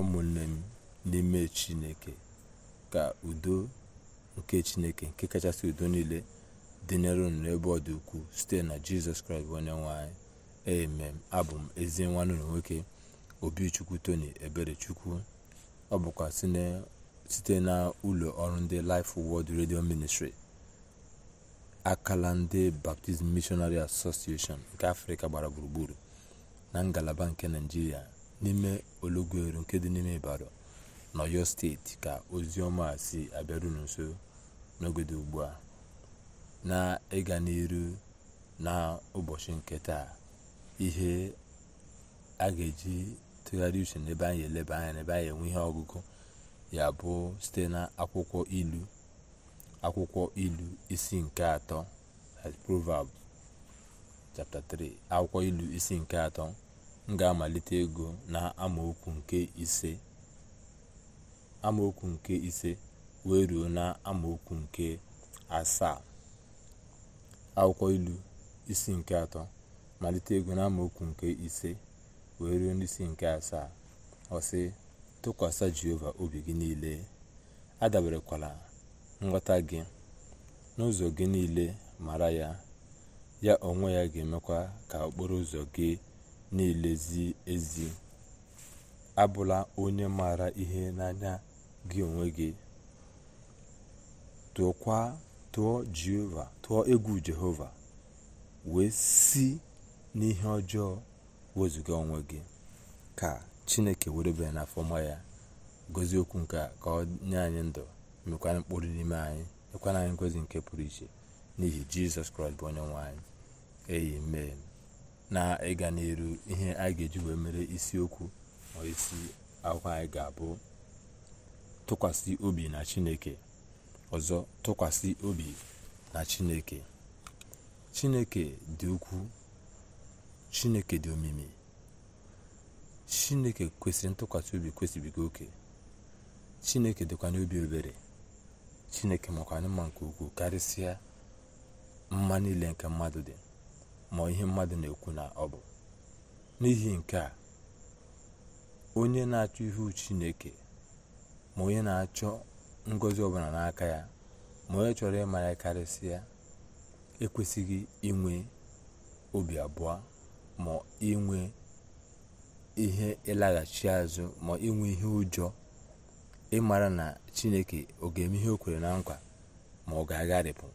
ụmụnne m n'ime chineke ka udo nke chineke nke kachasị udo niile dịnyere unu n'ebe ọ dị ukwuu site na jizọs kraịst bụ onye nwanyị anyị amen abụ m ezi nwanne na nwoke obichukwu tony eberechukwu ọ bụkwa site na ụlọ ọrụ ndị Life Word redio Ministry akala ndị Baptist Missionary Association nke afrịka gbara gburugburu na ngalaba nke naijiria n'ime olọgụrụ nke dị n'ime ibadan n'ọyọ steeti ka ozi ọma si abịaru unu nso n'oge dị ugbu a na ịga n'iru ụbọchị nke taa ihe a ga-eji tụgharịa uche n'ebe anyị eleba anya n'ebe anyị enwe ihe ọgụgụ ya bụ site na akwụkwọ ilu akwụkwọ ilu isi nke atọ proverbs chapter 3 akwụkwọ ilu isi nke atọ m ga-amalite ego n'amaokwu nke ise wee ruo n'amaokwu nke asaa akwụkwọ ilu isi nke atọ malite na n'amaokwu nke ise wee ruo n'isi nke asaa ọsị tụkwasị jehova obi gị niile adaberekwala nghọta gị n'ụzọ gị niile mara ya ya onwe ya ga-emekwa ka okporo ụzọ gị na-elezi ezi abụla onye maara ihe n'anya gị onwe gị tụọ egwu jehova wee si n'ihe ọjọọ wezuga onwe gị ka chineke were bịa n'afọ ya gozie okwu nke a ka ọ nye anyị ndụ mekwana mkpụrụ n'ime anyị nyekwana anyị ngozi nke pụrụ iche n'ihi jizọs kraịst bụ onye nwe anyị mee. na ịga ihe anyị ga-eji wee mere isiokwu ma isi akwụkwọ anyị ga-abụ tụkwasị obi na chineke ọzọ tụkwasị obi na chineke chineke dị ukwu chineke dị omimi chineke kwesịrị ntụkwasị obi kwesịbiga oke chineke dịkwa n'obi obere chineke makwa mma nke ukwuu karịsịa mma niile nke mmadụ dị ma ihe mmadụ na-ekwu na ọ bụ n'ihi nke a onye na-achọ ihu chineke ma onye na-achọ ngozi ọbụla n'aka ya ma onye chọrọ ịma ya karịsịa ekwesịghị inwe obi abụọ ma inwe ihe ịlaghachi azụ ma inwe ihe ụjọ ịmara na chineke ọ ga-eme ihe o kwere na nkwa ma ọ ga-agharịpụ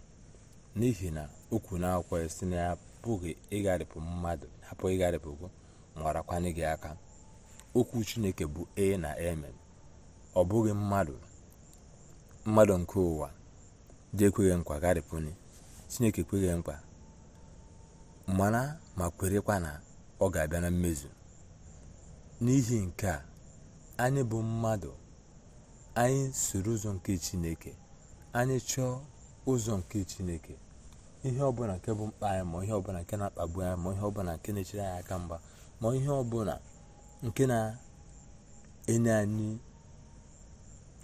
n'ihi na okwu na n'akwụkwọ ya si na ya apụghị ịgharịpụ mmadụ apụghị ịgharịpụgo gị aka okwu chineke bụ e na eme ọ bụghị mmadụ mmadụ nke ụwa dị ekweghị nkwa gharịpụnye chineke ekweghị mkpa mana ma kwerekwa na ọ ga-abịa na mmezu n'ihi nke a anyị bụ mmadụ anyị soro ụzọ nke chineke anyị chọọ ụzọ nke chineke ihe ọbụla nke bụ mkpa anyị ma ihe ọbụla nke na-akpagbu anyị ma ihe ọbụla nke na-echere anyị aka mgba ma ihe ọbụla nke na-enye anyị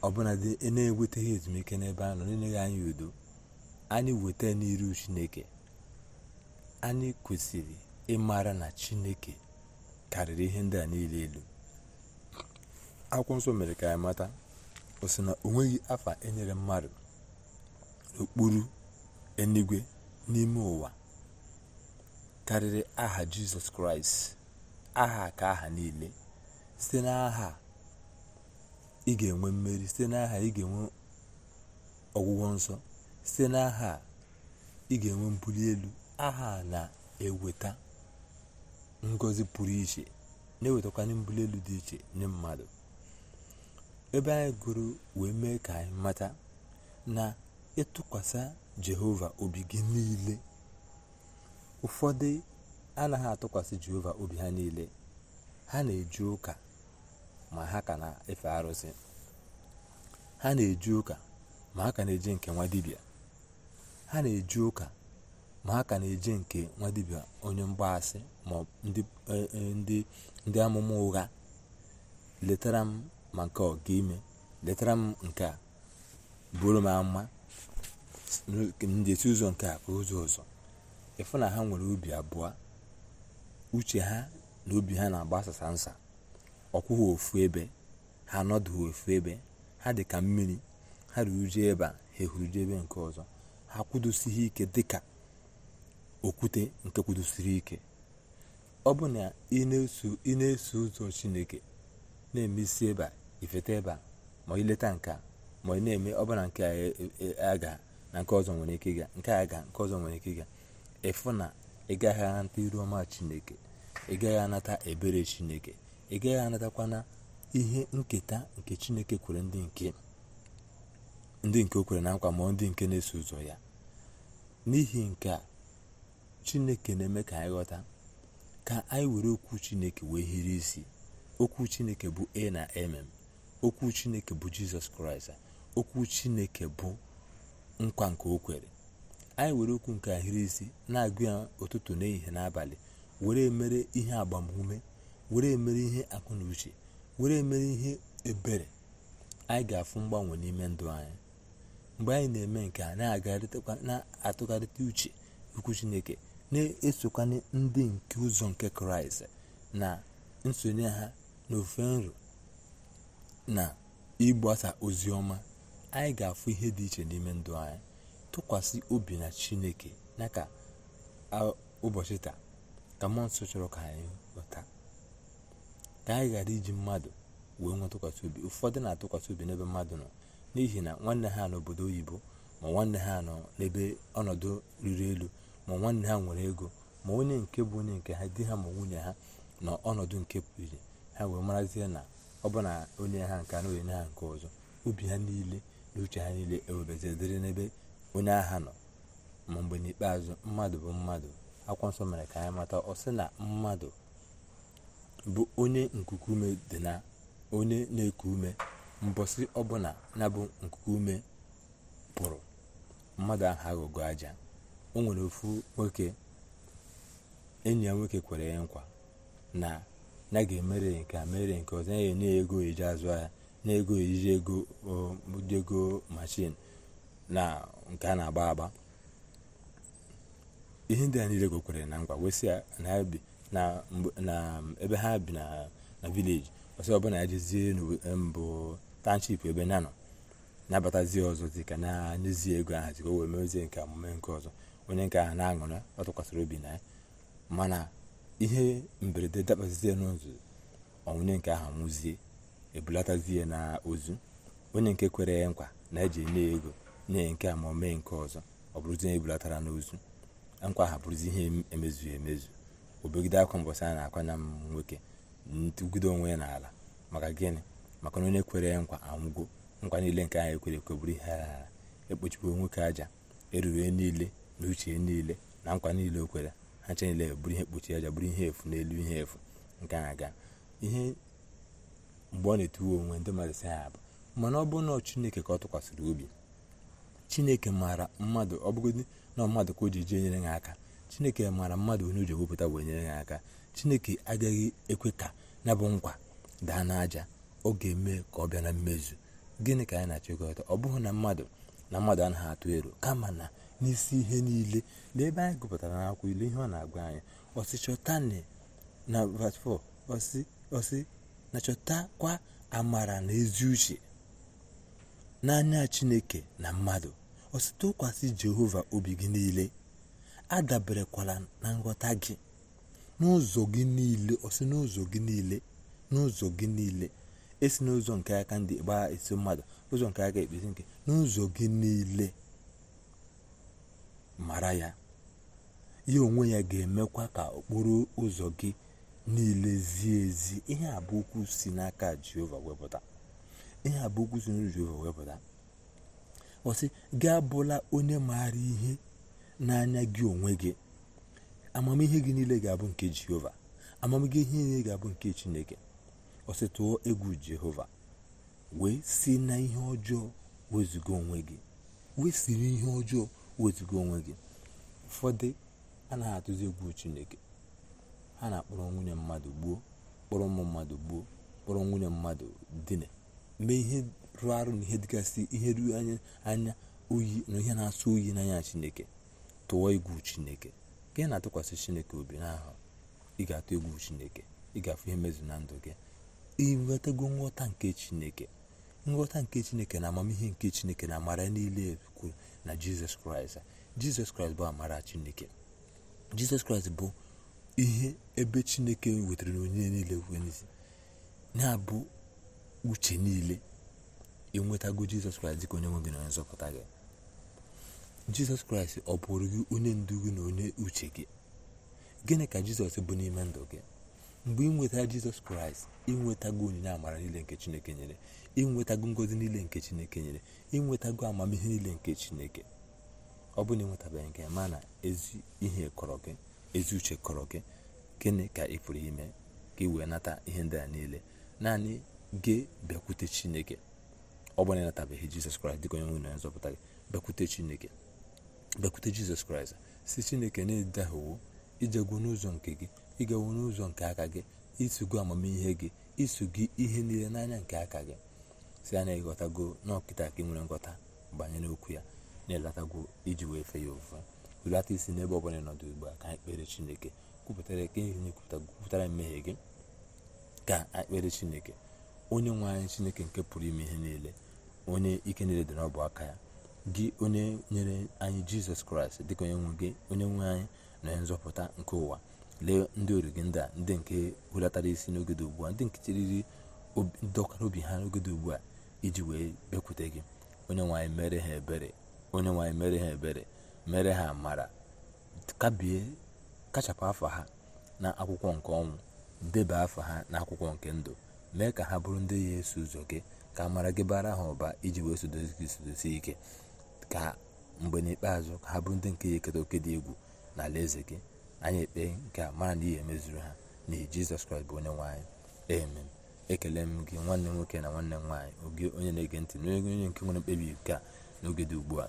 ọbụla dị e na eweteghị ezumike n'ebe anyị nọ na-enyeghị anyị udo anyị weta n'iru chineke anyị kwesịrị ịmara na chineke karịrị ihe ndị a niile elu akwụkwọ nsọ mere ka anyị mata o si na o nweghị afa enyere mmadụ n'okpuru eluigwe n'ime ụwa karịrị aha jizọs kraịst aha ka aha niile site n'aha ị ga-enwe mmeri site n'aha ị ga-enwe ọgwụgwọ nsọ site n'aha ị ga-enwe mbuli elu aha na-eweta ngozi pụrụ iche na-ewetakwanye mbuli elu dị iche nye mmadụ ebe anyị gụrụ wee mee ka anyị mata na ịtụkwasị jehova obi gị niile ụfọdụ anaghị atụkwasị jehova obi ha niile ha na-eji ụka ma ha ka na-efe arụsị ha na-eji ụka ma ha ka na-eji nke nwa dibia ma ha ka na-eji nke nwa dibia onye mgbaasị ma e, e, ndị ndị amụma ụgha letara m ma nke ọ ga-ime letara m nke a bụrụ m ama ndị ụzọ nke a bụ ụzọ ọzọ ịfụ na ha nwere obi abụọ uche ha na obi ha na-agbasasa nsa ọkwụghị ofu ebe ha anọdụghị ofu ebe ha dị ka mmiri ha ruru je ebe a ha ehuruje ebe nke ọzọ ha kwudosighị ike dịka okwute nke kwudosiri ike ọ bụ na ị na-eso ụzọ chineke na-emesi ebe a ifeta ebe a ma ileta a ma ị na-eme ọbụla nke a na nke ọzọ nwere ike ịga nke a ga nke ọzọ nwere ike ịga ịfụ na ị gaghị anata iru ọma chineke ị gaghị anata ebere chineke ị gaghị anatakwana ihe nketa nke chineke kwere ndị nke ndị nke o kwere na nkwa ma ndị nke na-eso ụzọ ya n'ihi nke a chineke na-eme ka anyị ghọta ka anyị were okwu chineke wee hiri isi okwu chineke bụ a na mm okwu chineke bụ jizọs kraịst okwu chineke bụ nkwa nke o kwere anyị were okwu nke ahịrị isi na-agụ ya ụtụtụ n'ehihie n'abalị were mere ihe agbamume were mere ihe akụ uche were mere ihe ebere anyị ga-afụ mgbanwe n'ime ndụ anyị mgbe anyị na-eme nke a na-atụgharịta uche ukwu chineke na-esokwanye ndị nke ụzọ nke kraịst na nsonye ha na ofe nro na ịgbasa ozi ọma anyị ga-afụ ihe dị iche n'ime ndụ anyị tụkwasị obi na chineke na ka ụbọchị taa ka mmụọ nsọ chọrọ ka anyị ghọta ka anyị ghara iji mmadụ wee nwe tụkwasị obi ụfọdụ na-atụkwasị obi n'ebe mmadụ nọ n'ihi na nwanne ha n'obodo oyibo ma nwanne ha nọ n'ebe ọnọdụ riri elu ma nwanne ha nwere ego ma onye nke bụ onye nke ha di ha ma nwunye ha na ọnọdụ nke pụrụ ha wee marazie na ọ bụ na onye ha nke na onye ha nke ọzọ obi ha niile n'uche ha niile ewebazie dịrị n'ebe onye agha nọ ma mgbe n'ikpeazụ mmadụ bụ mmadụ akwụkwọ nsọ mere ka anyị mata ọ sị na mmadụ bụ onye nkuku ume dị na onye na-eku ume mbọsị ọbụla na bụ nkuku ume pụrụ mmadụ ahụ aghọgo aja o nwere ofu nwoke enyi ya nwoke kwere ya nkwa na ya ga-emere nke a mere nke ọzọ ya enye ya ego ji azụ ya na-ego eriri ego ụdị ego na nke a na-agba agba ihe ndị a niile gokwere na ngwa wesị na ebe ha bi na vileji ọsọ ọbụla ya jezie mbụ tanship ebe ya nọ nabatazie ọzọ dị ka na-enyezie ego ahụ zika o wee mezie nke omume nke ọzọ onye nke ahụ na-aṅụrị ọ tụkwasịrị obi na ya mana ihe mberede dabazie n'ụzọ onwunye nke ahụ nwụzie ebulatazie na ozu onye nke kwere ya nkwa na eji enye ego nye nke a ma o mee nke ọzọ ọ bụrụzi onye ebulatara n'ozu nkwa ha bụrụzi ihe emezu emezu obegide akwa mbọsị a na-akwanya m nwoke ntụgide onwe ya n'ala maka gịnị maka na onye kwere nkwa anwụgo nkwa niile nke anyị ekwere ekwe bụrụ ihe ala ekpochikwa nwoke aja erure niile na uche niile na nkwa niile o kwere ha niile bụrụ ihe kpochi aja bụrụ ihe efu n'elu ihe efu nke ha ga ihe mgbe ọ na-etiwe onwe ndị mmadụ si ha bụ mana ọ bụrụ na chineke ka ọ tụkwasịrị obi chineke maara mmadụ ọ bụgodị na mmadụ ka o ji jee nyere ha aka chineke maara mmadụ onye o ji ewepụta wee nyere ha aka chineke agaghị ekwe ka ya bụ nkwa daa n'aja ọ ga-eme ka ọ bịa na mmezu gịnị ka anyị na-achịkọta ọ bụghị na mmadụ na mmadụ anaghị atụ ero kama na n'isi ihe niile na ebe anyị gụpụtara n'akwụkwọ ilu ihe ọ na-agwa anyị ọsị chọtani na ọsị na chọtakwa amara na ezi uche n'anya chineke na mmadụ osite ụkwasị jehova obi gị niile adaberekwala na nghọta gị n'ụzọ gị niile osi n'ụzọ gị niile n'ụzọ gị niile esi n'ụzọ nke aka ndị gbaa esi mmadụ ụzọ nke aka ekpezi nke n'ụzọ gị niile mara ya ya onwe ya ga-emekwa ka okporo ụzọ gị niile zie ezi ihe a bụ okwu si n'aka jehova wepụta ihe a bụ okwu si n'aka jehova wepụta ọsị gị abụla onye maara ihe n'anya gị onwe gị amamihe gị niile ga-abụ nke jehova amamihe gị niile ga-abụ nke chineke ọsị tụọ egwu jehova wee si na ihe ọjọọ wezuga onwe gị wee siri ihe ọjọọ wezuga onwe gị ụfọdụ anaghị atụzi egwu chineke ha na-akpọrọ nwunye mmadụ gbuo kpọrọ ụmụ mmadụ gbuo kpọrọ nwunye mmadụ dine mee ihe rụọ arụ na ihe dịgasị ihe ruo anya anya oyi na ihe na-asọ oyi n'anya chineke tụọ egwu chineke ka na-atụkwasị chineke obi n'ahụ ị ga-atụ egwu chineke ị ga-afụ ihe mezu na ndụ gị ịnwetago nghọta nke chineke nghọta nke chineke na amamihe nke chineke na amara niile kwuru na jizọs kraịst jizọs kraịst bụ amara chineke jizọs kraịst bụ ihe ebe chineke wetara onye niile wezi na-abụ uche niile enwetago jizọs kraịst dịka onye nwe gị na onye nzọpụta gị jizọs kraịst ọ bụrụ gị onye ndu gị na onye uche gị gịnị ka jizọs bụ n'ime ndụ gị mgbe ịnwetara jizọs kraịst ịnwetago onyinye amara niile nke chineke nyere ịnwetago ngozi niile nke chineke nyere ịnwetago amamihe niile nke chineke ọ bụ na ịnwetabeghị nke ma na ezi ihe kọrọ gị ezi uche kọrọ gị gịnị ka ị pụrụ ime ka ị wee nata ihe ndị a niile naanị gị bịakwute chineke ọ bụ na ịnatabeghị jizọs kraịst dịka onye nwe na nzọpụta gị bịakwute chineke bịakwute jizọs kraịst si chineke na-edaghịwo ijegwu n'ụzọ nke gị ịgawo n'ụzọ nke aka gị isogo amamihe gị iso gị ihe niile n'anya nke aka gị si anya ịghọtago n'ọkịta ka ị nwere nghọta banyere okwu ya na-elatago iji wee fe ya ofufe hulata isi n'ebe ọbụla nọdụ ugbu a ka anyị kpere chineke kwupụtara ka ihe nye kwupụtara mmehie gị ka anyị kpere chineke onye nwe anyị chineke nke pụrụ ime ihe niile onye ike niile dị n'ọbụ aka ya gị onye nyere anyị jizọs kraịst dịka onye nwe gị onye nwe anyị na onye nzọpụta nke ụwa lee ndị ori gị ndị a ndị nke hulatara isi n'oge dị ugbu a ndị nke chiriri ndọkara obi ha n'oge dị ugbu a iji wee bekwute gị onye nwanyị mere ha ebere onye nwe anyị mere ha ebere mere ha mara kabie kachapụ afọ ha na akwụkwọ nke ọnwụ deba afọ ha na akwụkwọ nke ndụ mee ka ha bụrụ ndị ya eso ụzọ gị ka mara gị bara ha ụba iji wee sodozi gị sodozi ike ka mgbe n'ikpeazụ ka ha bụrụ ndị nke ya eketa oke dị egwu na ala eze gị anyị ekpe nke a mara na ihe emezuru ha na jizọs kraịst bụ onye nwaanyị amen ekele m gị nwanne nwoke na nwanne nwaanyị oge onye na-ege ntị n'oge onye nke nwere mkpebi nke a n'oge dị ugbu a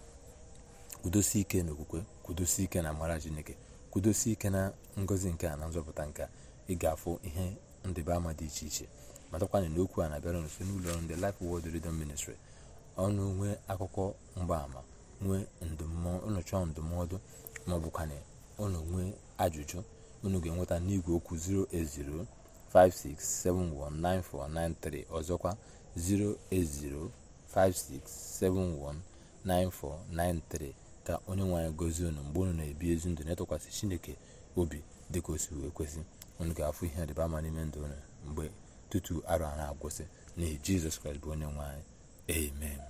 kwudosi ike n'okwukwe kwudosi ike na amara chineke kwudosi ike na ngozi nke a na nzọpụta nke ị ga-afụ ihe ndịba ama dị iche iche matakwana na okwu a na-abịara nso n'ụlọ ọrụ ndị Life Word Radio Ministry ọnụ nwee akụkọ mgbaama nwee unu ndụmọdụ ma ọ nwee ajụjụ unu ga-enweta n'igwe okwu 08056719493 ọzọkwa 08056719493 ka onye nwe anyị gozie unu mgbe unu na-ebi ezi ndụ na-etụkwasị chineke obi dịka o si wee kwesị unu ga-afụ ihe dịba ama n'ime ndụ unu mgbe tutu arụ a na-agwụsị n'ihi jizọs kraịst bụ onye nwe anyị amen